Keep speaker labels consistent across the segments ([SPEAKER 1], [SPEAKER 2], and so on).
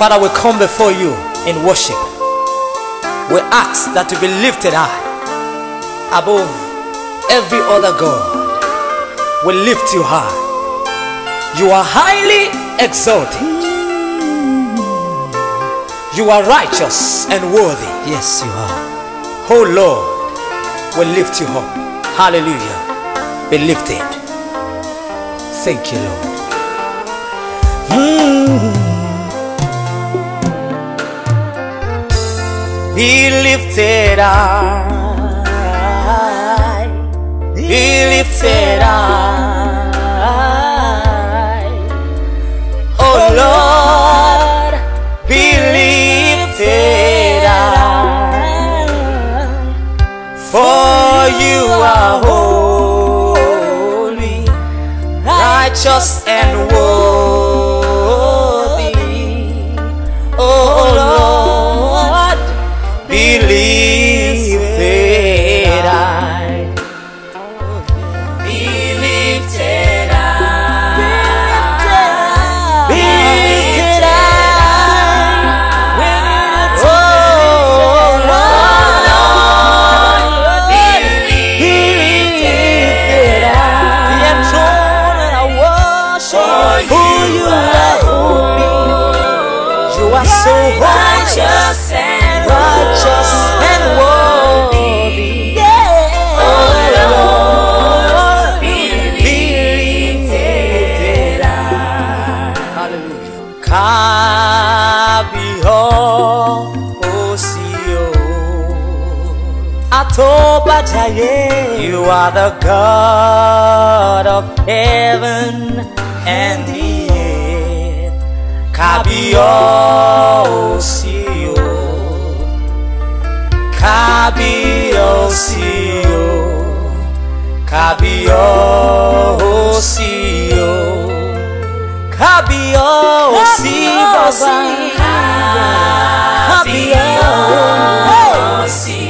[SPEAKER 1] Father, we come before you in worship. We ask that You be lifted high above every other God. We lift you high. You are highly exalted. You are righteous and worthy. Yes, you are. Oh Lord, we lift you up. Hallelujah. Be lifted. Thank you, Lord. Mm. He lifted I. He lifted I. Oh Lord, He lifted I. For you are holy, righteous and worthy. You are the God of heaven and the earth. Kabiosio, Kabiosio, Kabiosio, Kabiosio, Kabiosio.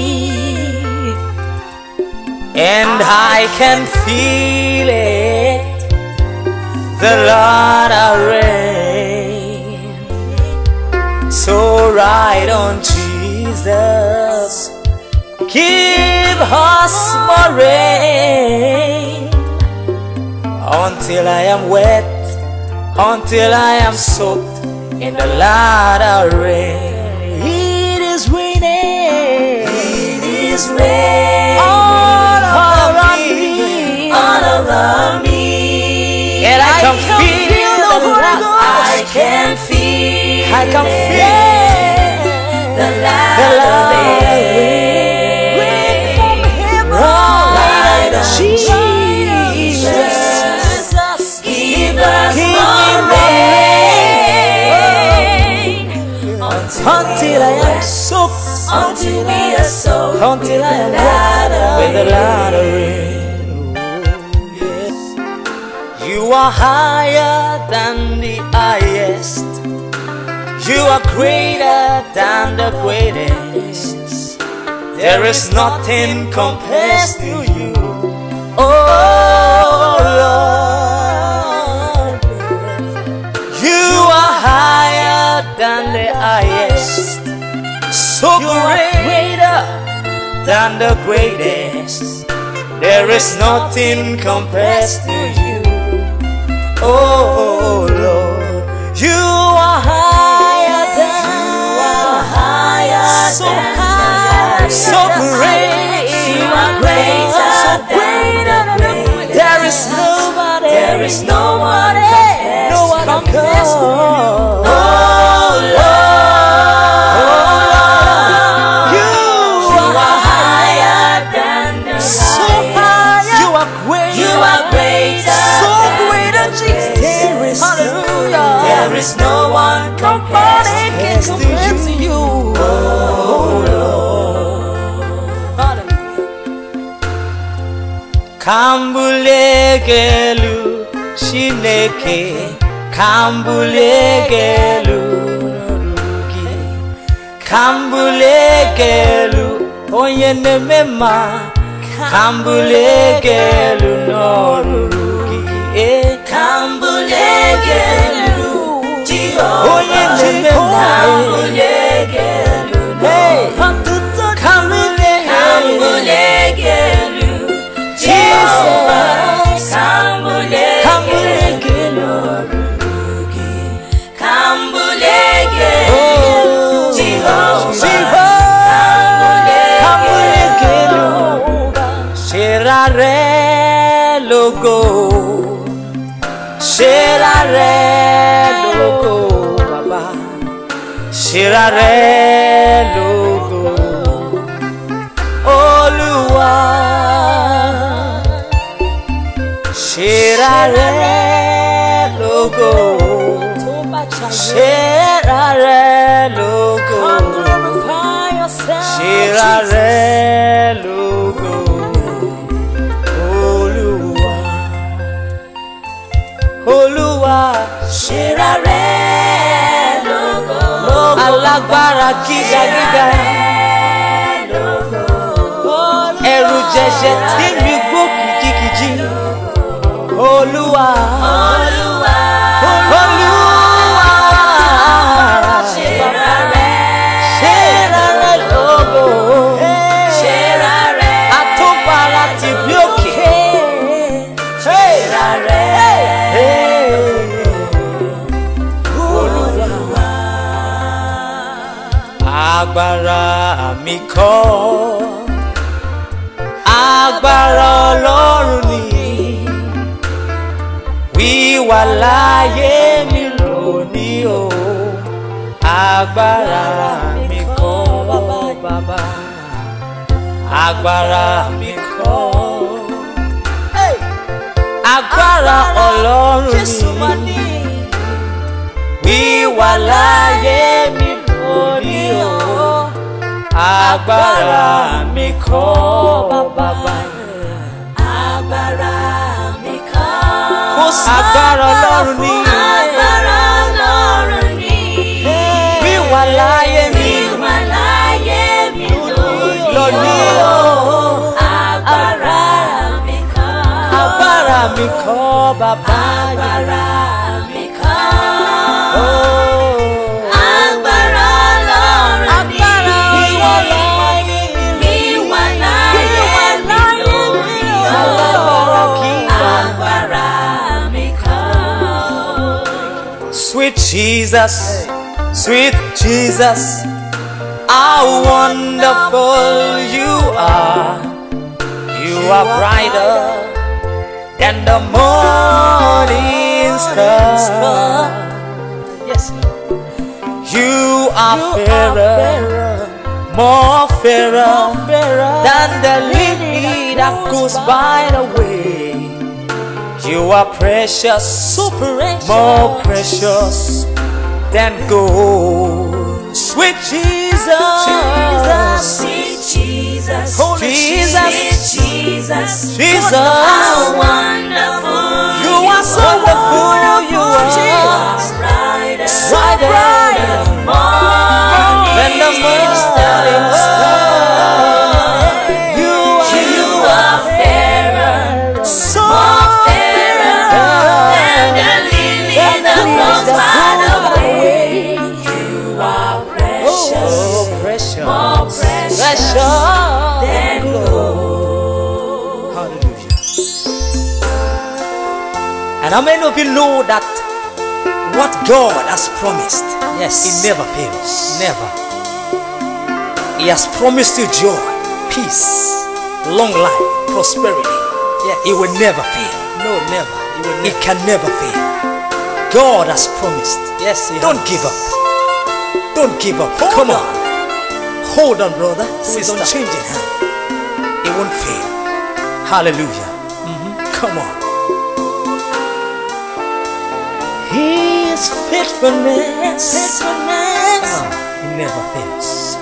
[SPEAKER 1] And I can feel it The Lord I Rain. So ride on Jesus Give us more rain Until I am wet Until I am soaked In the Lord of Rain. It is raining It is raining can feel I can feel the light, the light of it. Jesus. us until I am soaked, until I am soaked, until I am with the light of rain. You are higher. greater than the greatest. There is nothing compares to you. Oh Lord, you are higher than the highest. So greater than the greatest. There is nothing compares to you. Oh Lord, you are higher so high, so great. You are greater, so great. than There is nobody, there is no one, no one compares to you. Kan bulegelu Shineke Kan bulegelu Norugi Kan bulegelu Onye neme ma Kan bulegelu Norugi Eh Kan bulegelu Jehovah Onye neme ma Kan bulegelu Será re logo, será re logo, baba, será re logo, olua, será re logo, será re. gíga gíga ẹrù jẹjẹ tí mi gbókùn kìkìjì olúwa. agbára mi kọ́ agbára ọlọ́run ni wíwà láyé mi lónìí o agbára mi kọ́ bàbá agbára mi kọ́ agbára ọlọ́run ni wíwà láyé mi lónìí o agbára mi kọ́ bàbá agbára mi kọ́ agbára ọlọ́run ni agbára ọlọ́run ni bí wà láyé mi wà láyé mi lónìí o agbára mi kọ́ agbára mi kọ́ bàbá agbára. Jesus, sweet Jesus, how wonderful you are. You are brighter than the morning star. Yes, you are fairer, more fairer than the lily that goes by the way. You are precious, so precious, more precious than gold. Sweet Jesus, Jesus, sweet Jesus, Holy Jesus, sweet Jesus, Jesus. Jesus. How many of you know that what God has promised, yes, He never fails. Never. He has promised you joy, peace, long life, prosperity. Yes. He will never fail. No, never. He, never. he can never fail. God has promised. Yes, Don't has. give up. Don't give up. Hold Come on. on. Hold on, brother. Sister. change unchanging hand. It won't fail. Hallelujah. Mm -hmm. Come on. His faithfulness, faithfulness oh, never fails.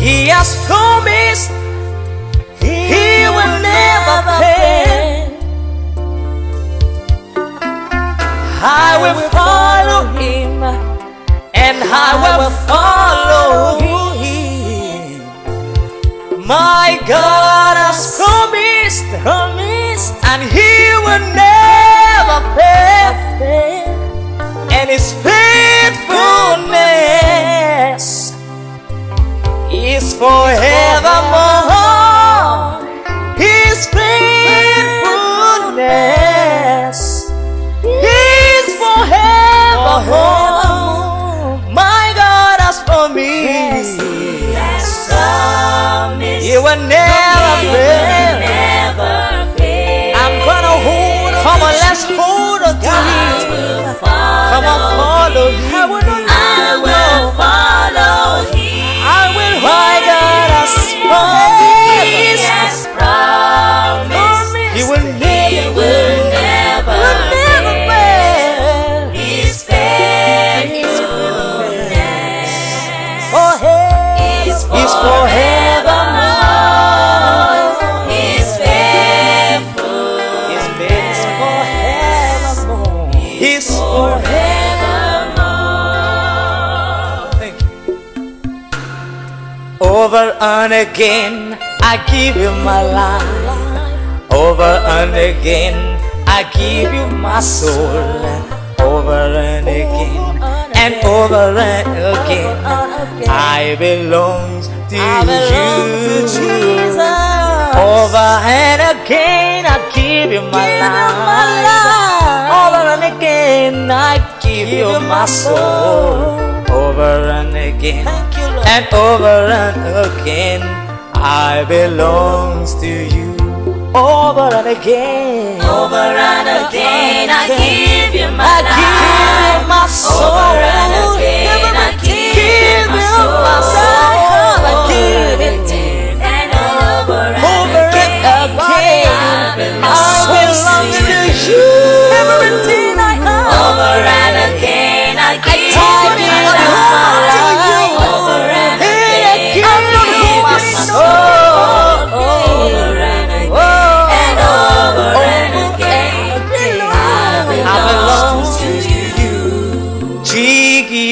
[SPEAKER 1] He has promised he, will, never fail. I will follow him and I will follow my God has promised, promised, and He will never fail. And His faithfulness is forevermore. Over and again, I give you my life. Over and again, I give you my soul. Over and again, and over and again, I belong to you. Over and again, I give you my life. Over and again, I give you my soul. Over and again and over and again I belongs to you over and again over and again, I give
[SPEAKER 2] you my I life.
[SPEAKER 1] give you my soul over and again I give, you my soul, my soul. I give it and over and over and again I belongs, I belongs to you everything I over and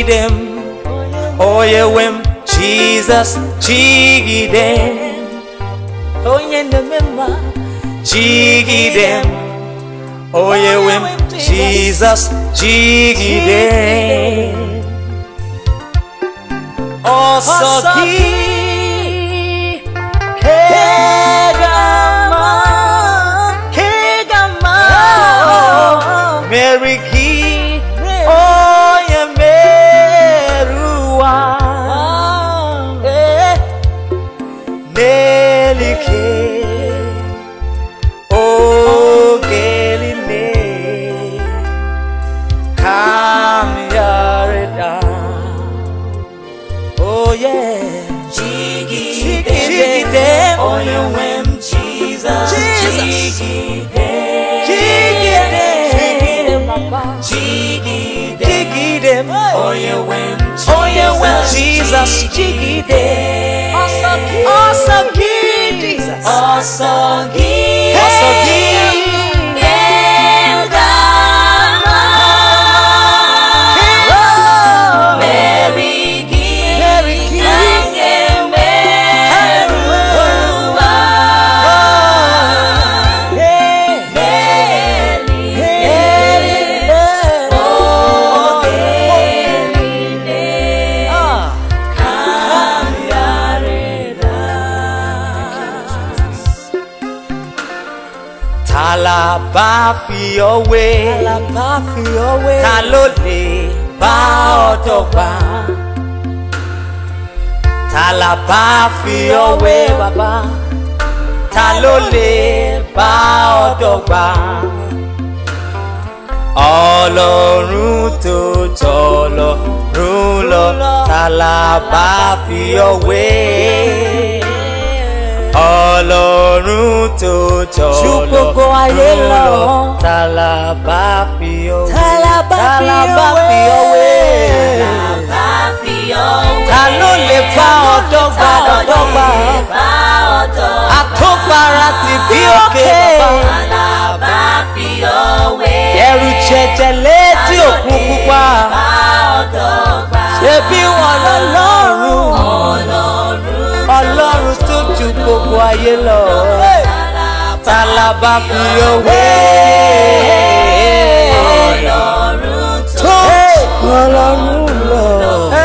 [SPEAKER 1] Oh yeah, oyewem jesus oh oyenemema chigidem oyewem jesus chigidem osokidem Oh, Jesus Jigide Awesome King Jesus Awesome King your way. Àlàbá fi your way. Ta ló lè bá ọ dọ́gba? Tàlàbá fi your way. Bàbá. Ta ló lè bá ọ dọ́gba? Ọlọ́run tó tọ́ lọ, rún lọ, tàlàbá fi your way ọlọ́run tó jọ lọ ju gbogbo ayé lọ tàlà bá fi ọwé tàlà bá fi ọwé ta ló lè bá ọ̀dọ́gba ọ̀dọ́gba àtọ́gbára ti bí òkè bàbá ẹrù jẹjẹ létí òkú pupa ṣebí wọn lọ lọ́rùn. ọlọ́run tó ju gbogbo ayé lọ ta la bá fi òwe ọlọ́run tó ju fi My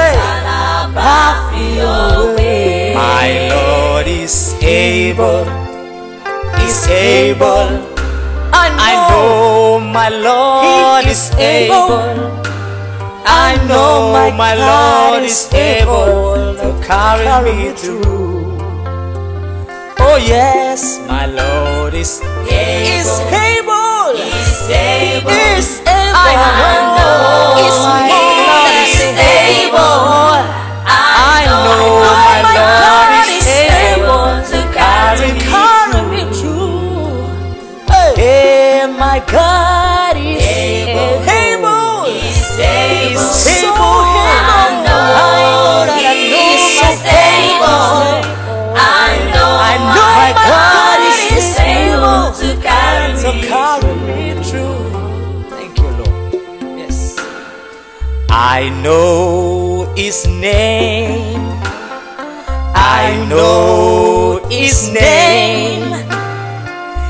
[SPEAKER 1] Lord is able is able I know my Lord is able. I know my, my Lord is able to carry me through. Oh yes, my Lord is able. Is able. Is able. Is able. I know. Is I know his name. I know his name.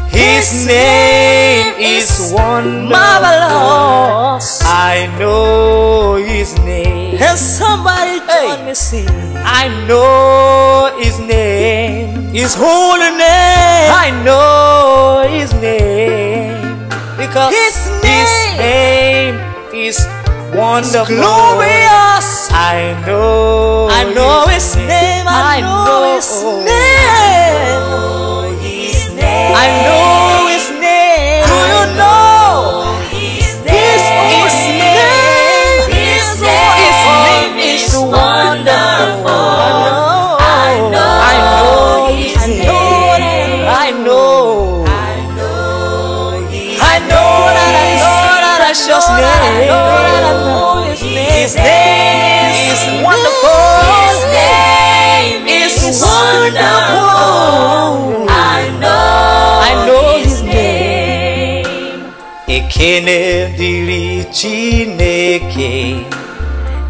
[SPEAKER 1] His name is one Marvelous. I know his name. And somebody join hey. me sing. I know his name. His holy name. I know his wonderful. It's glorious. I know. I know His name. I, I know, know His name. I know His name. Do you know His name? His name. His name is wonderful. I know. I know His name. I know. I know that I know that I just name. His name, is wonderful. His name is wonderful. I know, I know His name. Ekene diri Chineke.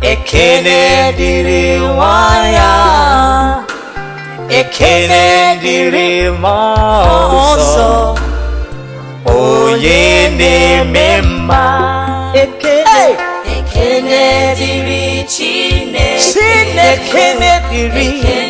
[SPEAKER 1] Ekene diri waya. Ekene diri ma ọzọ. Onye na ekene dịrị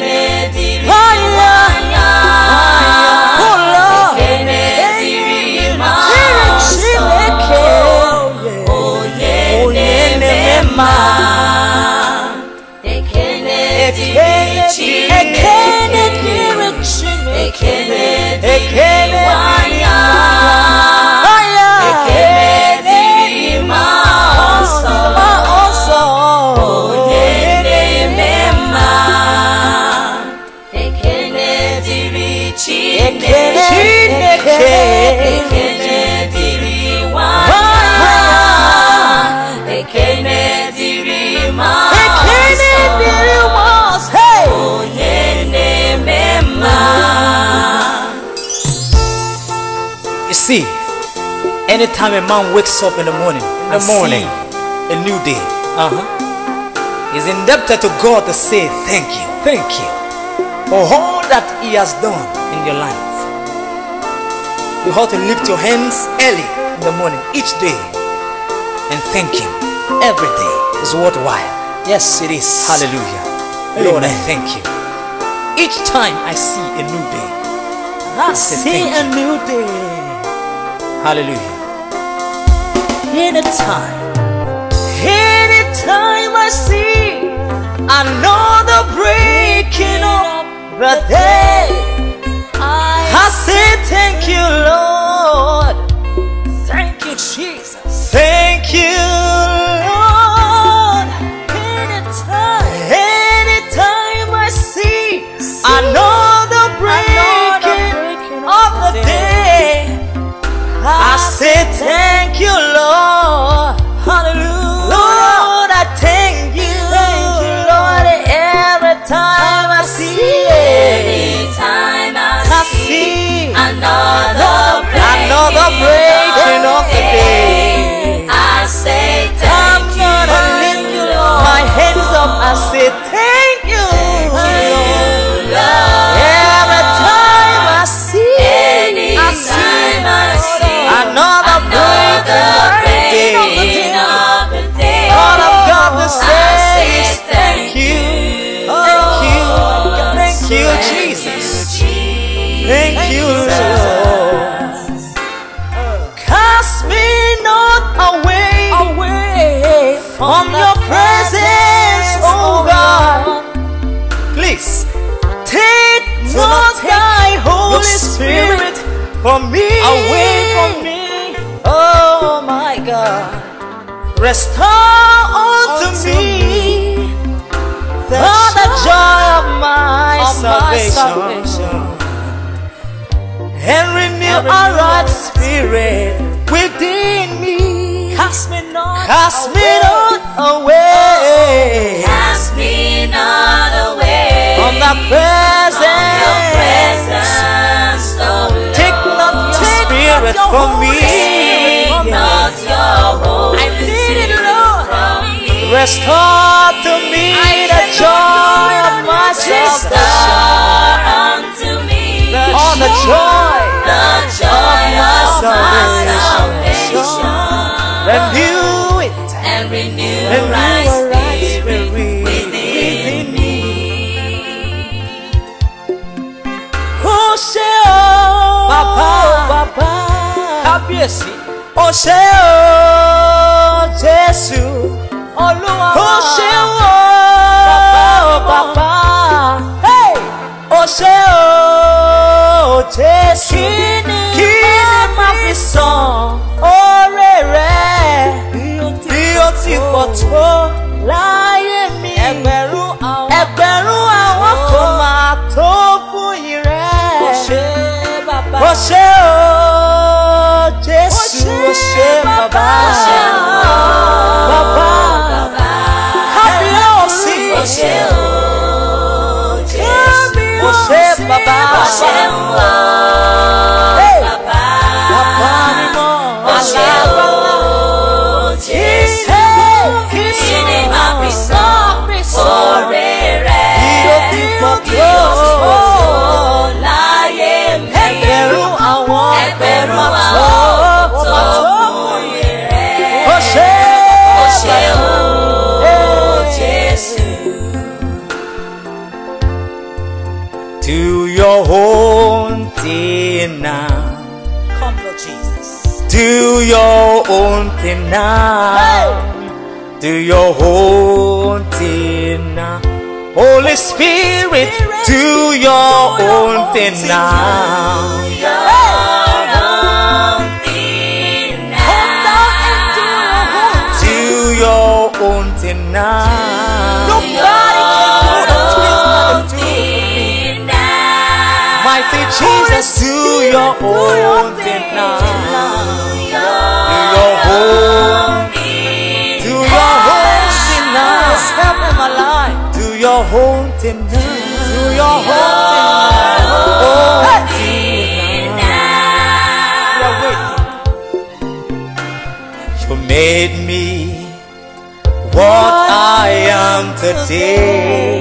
[SPEAKER 1] see, anytime a man wakes up in the morning, in the morning, a new day. Uh huh. He's indebted to God to say thank you, thank you for all that He has done in your life. You ought to lift your hands early in the morning each day and thank Him. Every day is worthwhile. Yes, it is. Hallelujah. Amen. Lord, I thank you. Each time I see a new day, I, I see a new day. Hallelujah. Anytime, anytime I see another breaking up the day, I say thank you, Lord. for me. Away from me. Oh my God. Restore unto, me, me all the joy of my, of salvation. my salvation. And renew a right spirit within me. Cast me not, Cast away. Me not away. Oh, cast me not away. On that it for me. Not your I need it all. Restore to me I the joy of my salvation. All the joy, the joy of my salvation. Renew it and renew. kábíyèsí ó o. something now. Do your own thing now. Holy Spirit, do your own thing now. something now. Nobody can do what to me. Mighty Jesus, do your own thing now. your home tonight. To your home tonight. Oh, hey. tonight. You made me what I am today.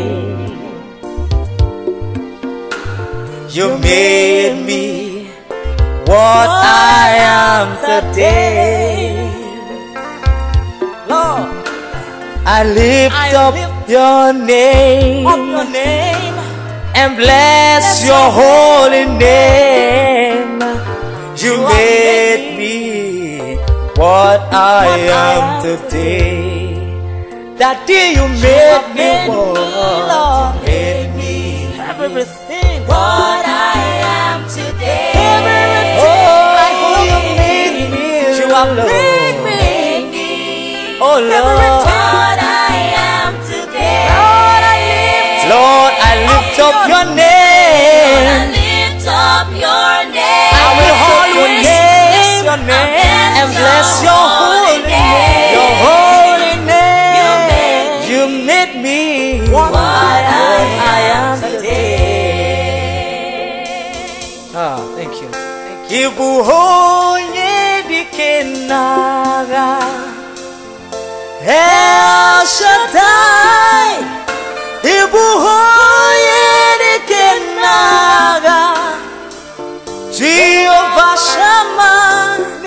[SPEAKER 1] You made me what I am today. Lord, I lift up your name, your name and bless, bless your holy name. You made me what I am today. That day you made me, Lord, you made me everything what I am today. Everything oh, you made me, you have made me. Oh Lord. lift up your name. Lift up your name. I will always your name and bless your holy name. Your holy name. You made me what I am today. Ah, thank you. Thank you. El Shaddai, Ibuho.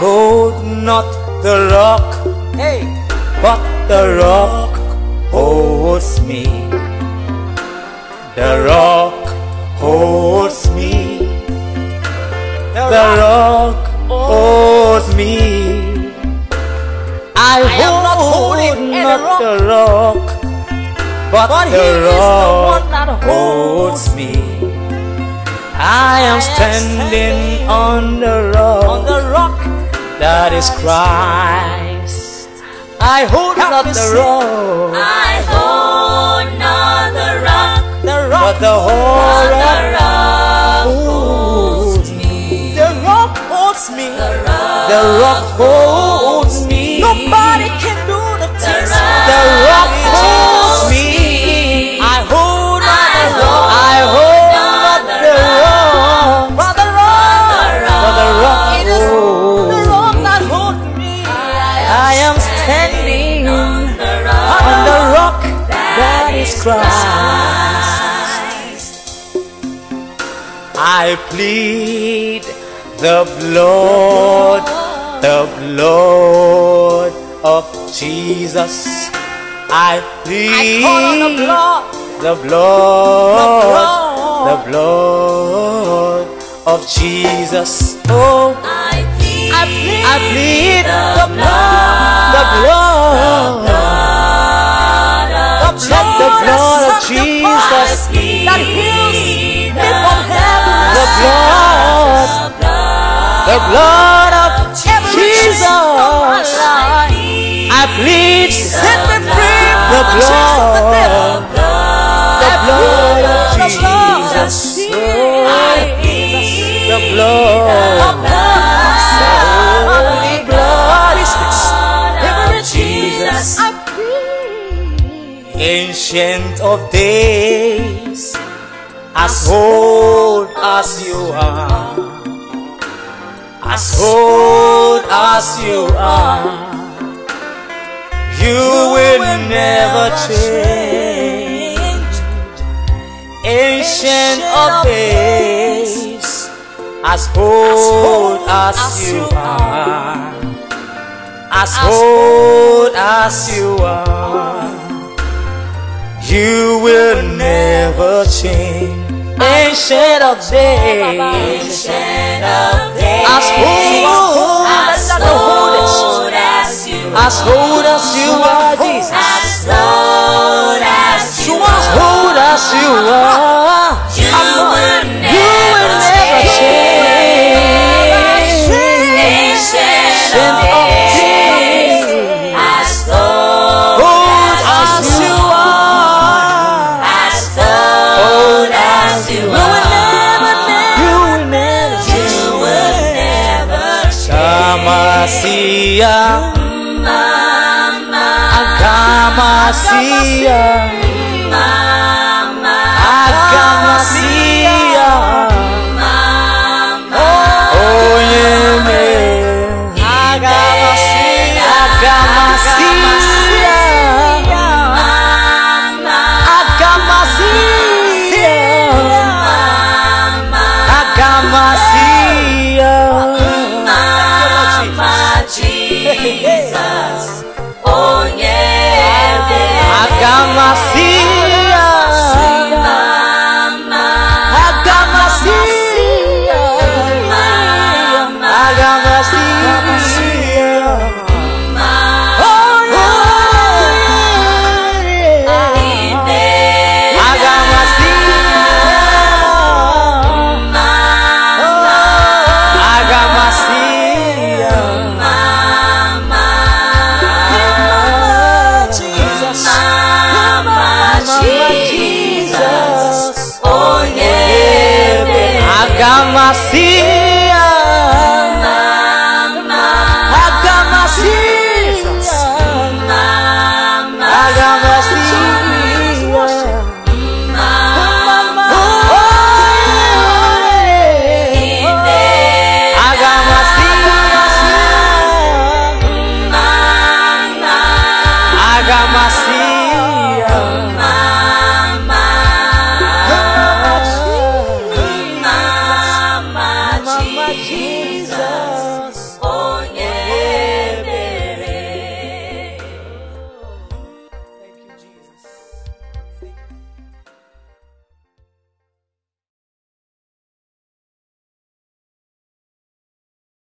[SPEAKER 1] hold not the rock, hey. but the rock holds me. The rock holds me. The rock holds me. I, I hold not, holding not rock. the rock, but, but the rock the that holds me. I am standing, standing on the rock. On the rock that is Christ. I hold not the rock. I hold not the rock. The rock. But the whole rock holds me. The rock holds me. The rock holds me. I plead the blood, the blood of Jesus. I plead the, blood, the blood, the blood, of Jesus. Oh, I plead, I plead, the blood, the blood, the blood, the blood of Jesus that heals blood, the blood of Jesus. I plead, set me free. The blood, the blood of Jesus. The blood. Ancient of days as old as you are, as old as you are, you will never change. Ancient of days, as old as you are, as old as you are, you will never change. Ancient of days. Ancient of days. As old as, as, old as you are. As old as you are, Jesus. As old as you are. As old as you are. Agama mama. Agama mama. Agama mama. Oh yeah Agama siya Agama assim